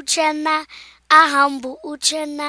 Uchenna aha m bụ Uchenna